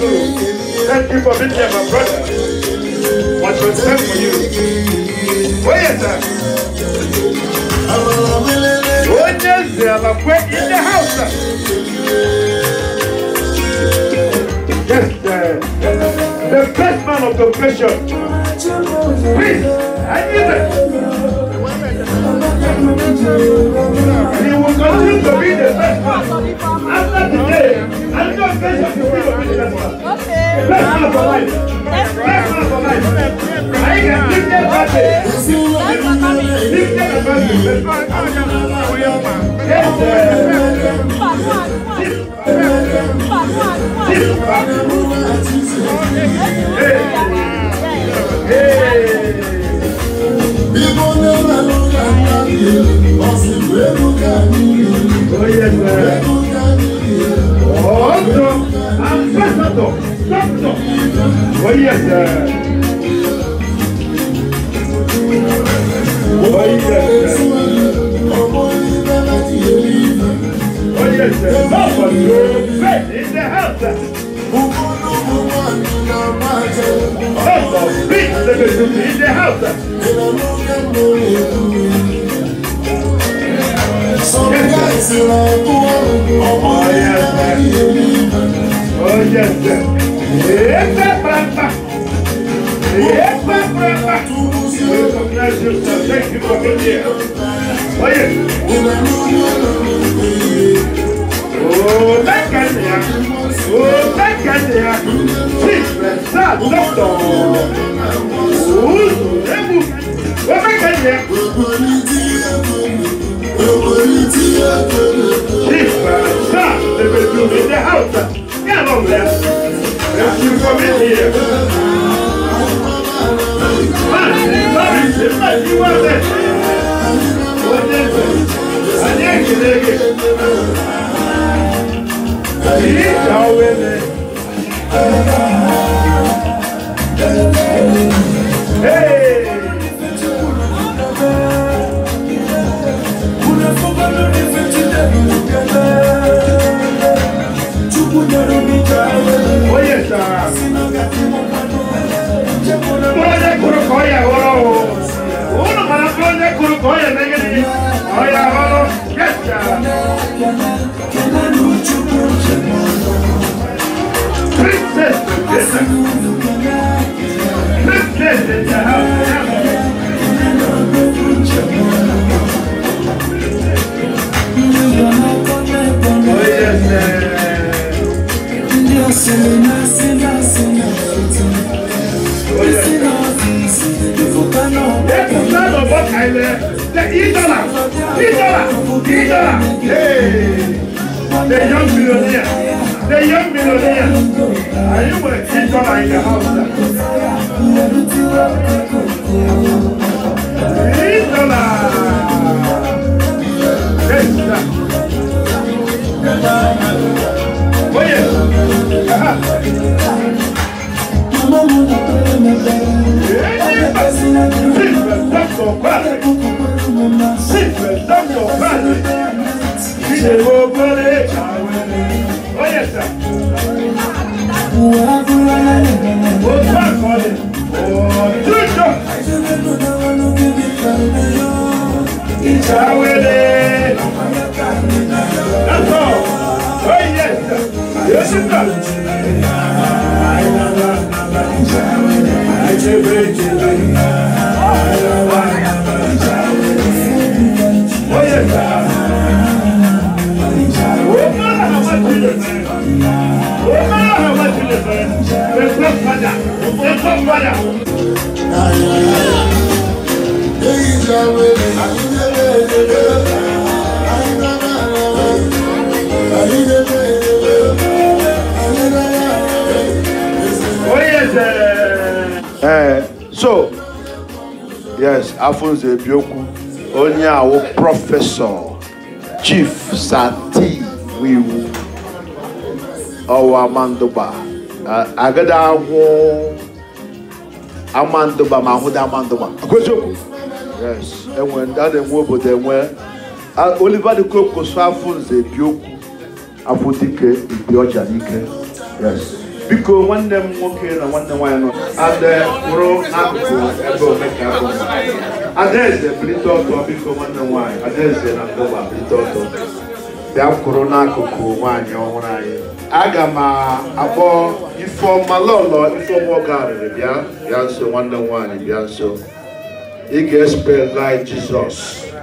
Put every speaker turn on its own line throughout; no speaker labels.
Thank you for being here, my brother. What was done for you. Where is that? What does the other in the house? Yes, sir. the, the best man of the pressure. Please, I need it. He will continue to be the best man after today. And just let's just be of business. Okay. Let's not for life. Let's not for life. I can give them advantage. Give them advantage. Yes. Bíbọn lẹ́nu ẹ̀rọ kan náà yẹ, ọ̀sìn lẹ́nu kan ní ìlú. e derrota. Olha Eita, prata! Eita, prata! Eita, Brasil, também que qualquer dia. Olha! Ô, da cadeia! Ô, da cadeia! Sim! àgbọ̀tọ̀ òwúrò ẹ̀bù wọ́n fẹ́ kẹ́lẹ́. Ìgbà bá lèbe dùn mí dé àwùjọ ní àná ọ̀gbẹ́. Èsì nǹkan mi ni ẹ̀. Máa ní lọ́rì ṣe máa ní wọ́n bẹ̀. Wọ́n dé bẹ̀. Àní ẹ̀gẹ̀dẹ̀gẹ̀. Princess, negeri Princess, princess, princess, princess, princess, Three dollars, three dollars, three dollars. Hey, the young millionaire, the young millionaire. Are you with three dollars in the house? Three dollars. Yes, sir. Oh yeah. Uh-huh. ṣe gbogbo lè jáwé lè. ó yẹ sà. wàá gbúra lálẹ́. ó bá àkọọ́lẹ̀. ọ̀ọ́dúnjọ. ìjáwé lè. lọ́tọ̀ ó yẹ sà. yóò sì tà. ìjáwé lè. àìjẹ́ bẹ́ẹ̀ jẹ́. so yes Alphonse Ebioku onye awo professor, Chief Sati Wiwu. ọwụwa amandụba agada ahụ amandụba ma ahụda amandụba akweziokwu yes enwe ndị a na-enwe obodo enwe Oliver de Coque kwụsụ afọ nze bi okwu afọ dike ibi ọja n'ike yes biko nwanne m nwoke na nwanne m nwaanyị nọ ade kwụrụ n'akụkụ ebe omeka adaeze bilite ọtọ biko nwanne m nwaanyị adaeze na ndụba bilite ọtọ bịa kwụrụ n'akụkụ nwaanyị ọhụrụ anyị aga m akpọ ifeọma lọlọ ifeọma ọga arịrị bịa bịa nso nwanne m nwaanyị bịa nso ị ga-espelai jizọs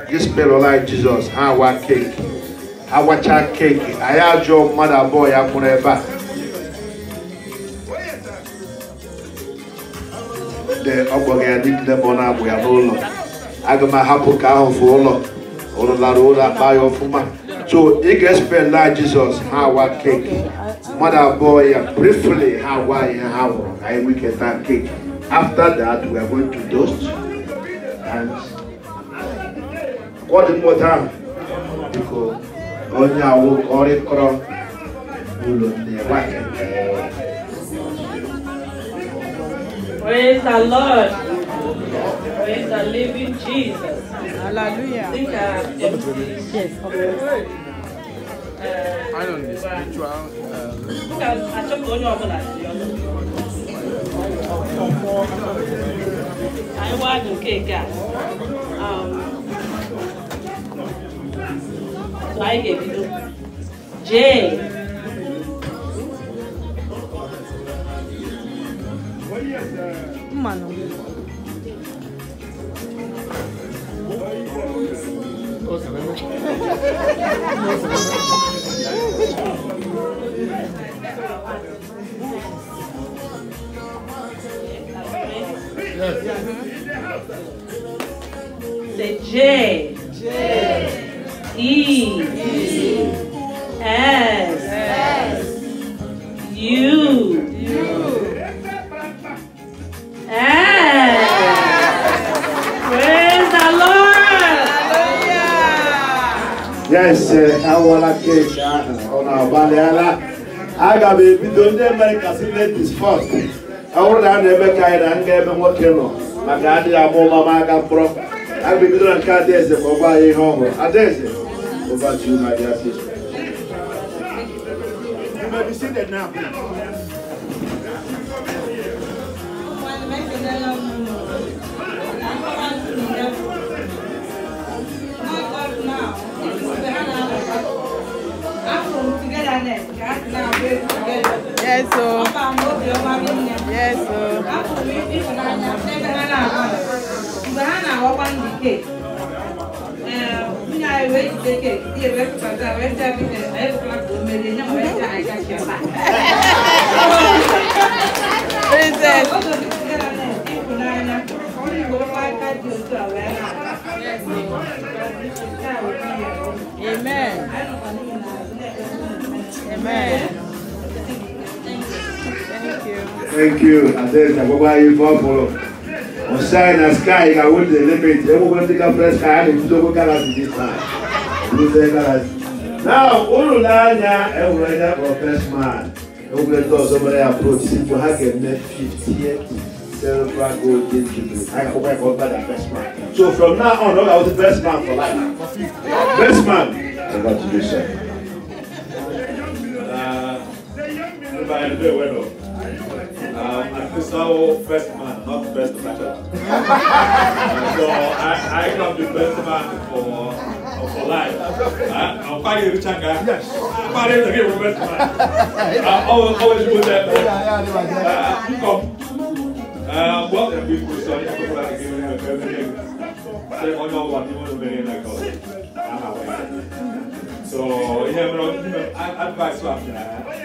gị spelụlai jizọs ha awa keeki Ha agwacha keeki anyị ajụọ mmadụ abụọ ya mụrụ ebe a ọ gbọghị ya niile bụ na-agbụ ya n'ụlọ aga m ahapụ ka ahụ fụ ụlọ ụlọ lara ụlọ akpa ya ọfụma So it gets fed like Jesus, how Hawa cake. Mother boy, briefly Hawaii Hawa, I we get that cake. After that, we are going to dust and what more time? Because only I will call it crop. Praise the Lord. Praise the living Jesus. Hallelujah. À, à? Yes, of course. I don't need spiritual. I want cake. Um, I gave you Jay. Mano. Say J.
J.
E. E. S. S. U. yes eh, awụọla keeki ahụ ọ na-agbalịala aga m ebido ndị amerịka sinetis fọt a bụrụ na a na-eme ka anyị na nga ebe nwoke nọ maka adịghị ama ụma ma aga kpọrọ aga ebido na nke adaeze ma ọ gwa anyị ihe ọhụrụ adaeze ụbọchị dị asị Thank you. Yes, sir. Yes, so. Mgbe ha na-awakwa ndị keeki, nwunye anyị wee jide keeki, di ebe pụtara wee jee bite, wee pụtara ka o merie, nye m wee jee anyị gachi ọba. Princess. Oge ndị kụtara na ịhụnanya, ndị Igbo aka dị otu a wee na-akpa. Amen. Thank you. Thank you. Thank you. Thank you. to follow. On shine and you. I will the limit. Everyone take a fresh sky, I will do galaxy this time. You say galaxy. Now, Ululanya, everyone that was first man. Everyone thought somebody approached him to have a net 58 cerebral gold game jubilee. I hope I got that best man. So from now on, I was the best man for life. Best man. Congratulations. by the way, um, I saw first man, not the best matchup. so I, I got the best man for for life. Uh, I'll fight the Changa. Yes. I'll fight the game best man. I always always go there. Uh, pick up. Uh, what a big question. like go back again and everything. Say, oh no, what you want to be in that call? So yeah, but I'll you advice for that.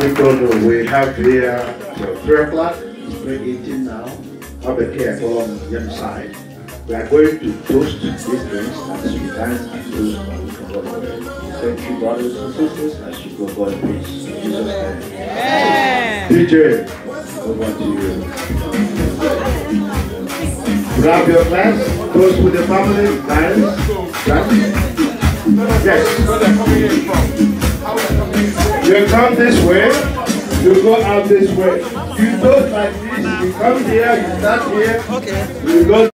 Because we have here till 3 o'clock, it's 3.18 now, here on the young side. We are going to toast these drinks as we dance and toast and we Thank you, brothers and sisters, as you go God in Jesus' name. DJ, over to you. Grab your glass, toast with the family, dance, dance. Yes. You come this way, you go out this way. You go like this, you come here, you start here, okay. you go